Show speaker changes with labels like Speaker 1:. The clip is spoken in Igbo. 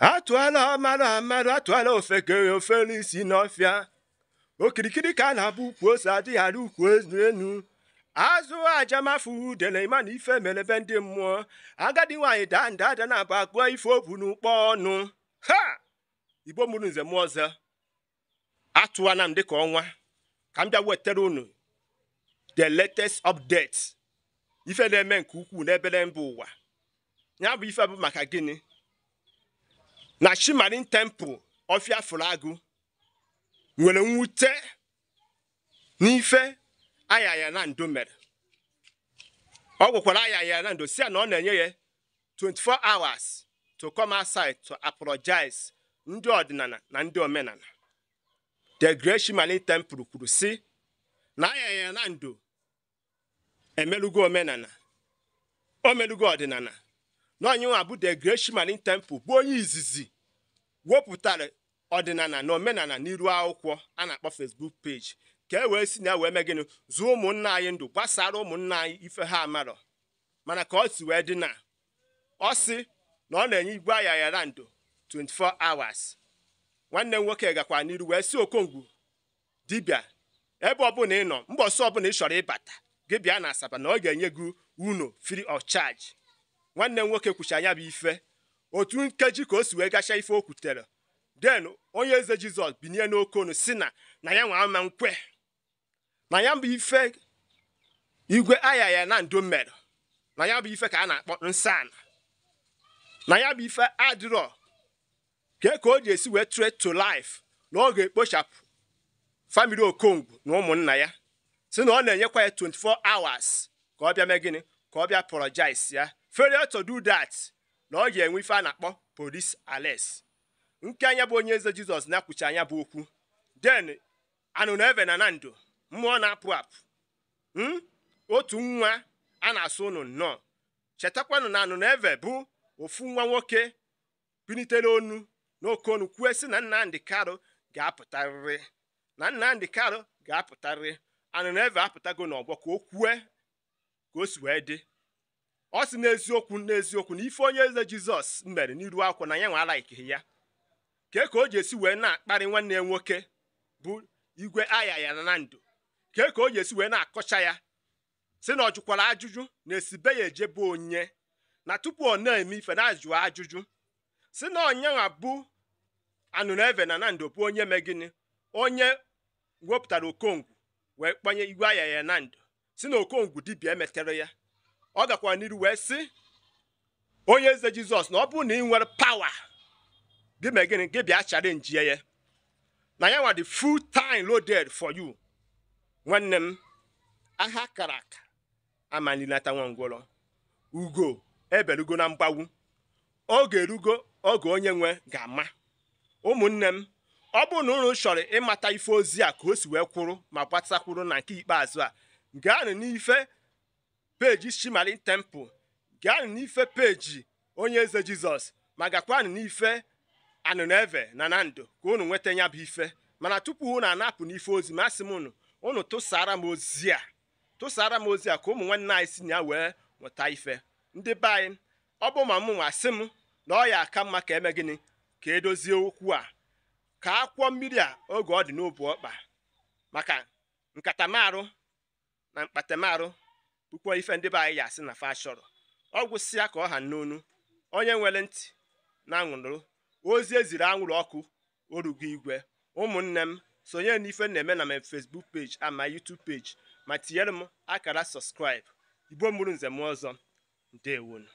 Speaker 1: atụala mara mmadụ atụala ofekere ofere isi n'ọfịa okirikiri ka a na-abụ ukwu ose adịghị ara ukwu enu azụ ajamafu udele imana ife mere ebe ndị mmụọ agadi nwaanyị daa nda ada na-abụ akpụọ ife obu n'ụkpọ ọnụ ha igbo mụrụ nze m ọzọ atụwana m dịka ọnwa ka m bịa wetara unu the latest update ife na-eme nke ukwuu n'ebere mba ụwa ya bụ ife bụ maka gịnị na Shimarin temple Ofia Fulagu nwere mwute n'ife Ayaya mere ọ gwakwara Ayaya Nando si a na ọ na-enye ya 24 hours to come outside to apologize ndị ọdịnala na ndị omenala the great Shimarin temple kwuru si na Ayaya Nando emelugo omenala o melugo ọdịnala na onyenwe abụ the great temple bụ onye izizi wepụtara ọdịnala na omenala n'iru akwụkwọ a na-akpọ Facebook page ka e wee si na e wee mee gịnị zụọ ụmụnna anyị ndụ gbasara ụmụnna anyị ife ha amarọ mana ka ọ si wee dị na ọ si na ọ na-enye igwe yara ndụ 24 hours nwanne m nwoke gakwa n'iru wee si okongwu dibịa ebe ọbụla ị nọ mbọsị ọbụla ị chọrọ ịbata gị bịa na asaba na ọ ga-enye gị unu free of charge nwanne m nwoke kwucha ya bụ ife otu nkeji ka o si wee gachaa ife o kwutere den onye eze jizọs binye n'okonu si na na ya nwa ama nkwe na ya bụ ife igwe aya ya na ndo mere na ya bụ ife ka a na-akpọ nsana na ya bụ ife adịrọ ke ka o ji esi wee tre to life na ọ ga-ekpochapụ famili okongwu na ụmụnna ya si na ọ na-enyekwa ya 24 hours ka ọ bịa mee gịnị ka ọ bịa prọjis ya failure to do that na ọ ga-enwe ife a na-akpọ polis ales nke anya bụ onye eze jizọs na-akwụchi anya bụ okwu den anụ na eve na na ndụ mmụọ na-apụ apụ hmm? otu nwa a na-asụ ụnụ nnọọ chetakwanụ na anụ na eve bụ ofu nwa nwoke pinitere onu na onu kwue sị na nnamdị karụ ga-apụtarịrị na nnamdị karụ ga-apụtarịrị anụ na eve apụtago n'ọgbọ ka o kwue ka o si wee dị ọ sị n'eziokwu n'eziokwu na ife onye eze jizọs mere n'iru akwụ na ya nwe alaikighi ya kee ka o ji esi wee na-akparị nwanne ya nwoke bụ igwe aya ya na ndụ kee ka o ji esi wee na-akọcha ya si na ọ jụkwara ajụjụ na esibe ya ejebe onye na tupu ọ na-eme ife na ajụjụ si na abụ bụ anụneve na nando bụ onye megini onye wepụtara okongwu wee kpanye igwe aya ya na ndụ si na okongwu dibịa emetere ya ọ gakwara n'iru wee sị onye eze jizọs na ọ bụrụ na ị nwere pawa gị mee gịnị gị bịa chalenji ya na ya nwa the full time loaded for you nwanne m aha kara aka amalilata ugo eberugo na mgbawu oge erugo oge onye nwe ga-ama ụmụnne m ọ bụrụ na unu chọrọ ịmata ife ozi a ka o si wee kwụrụ ma gbatakwuru na nke ikpeazụ a gaanụ n'ife peji shimali Temple gaanụ n'ife peji onye eze Jizọs ma gakwanụ n'ife Anụneve na Nando ka unu nweta ya bụ ife mana tupu unu anapụ n'ife ozi ma asị m unu unu tụsara m ozi a tụsara m ozi a ka ụmụ nwanne anyị si ya wee nweta ife ndị be anyị ọ bụ ma m nwa sị m na ọ ya aka mma ka eme gịnị ka edozie okwu a ka akwọ mmiri a oge ọ dị n'obu ọkpa maka nkatamarụ na mkpatamarụ pụkwa ife ndị be anyị ya asị na fa chọrọ ọ gwụsịa ka ọha n'onu onye nwere ntị na anwụrụ ozi eziri anwụrụ ọkụ orugo igwe ụmụnne m sonye n'ife na-eme na m Facebook page ama YouTube page ma tinyere m akara subscribe igbo mụrụ nze m ọzọ ndewonu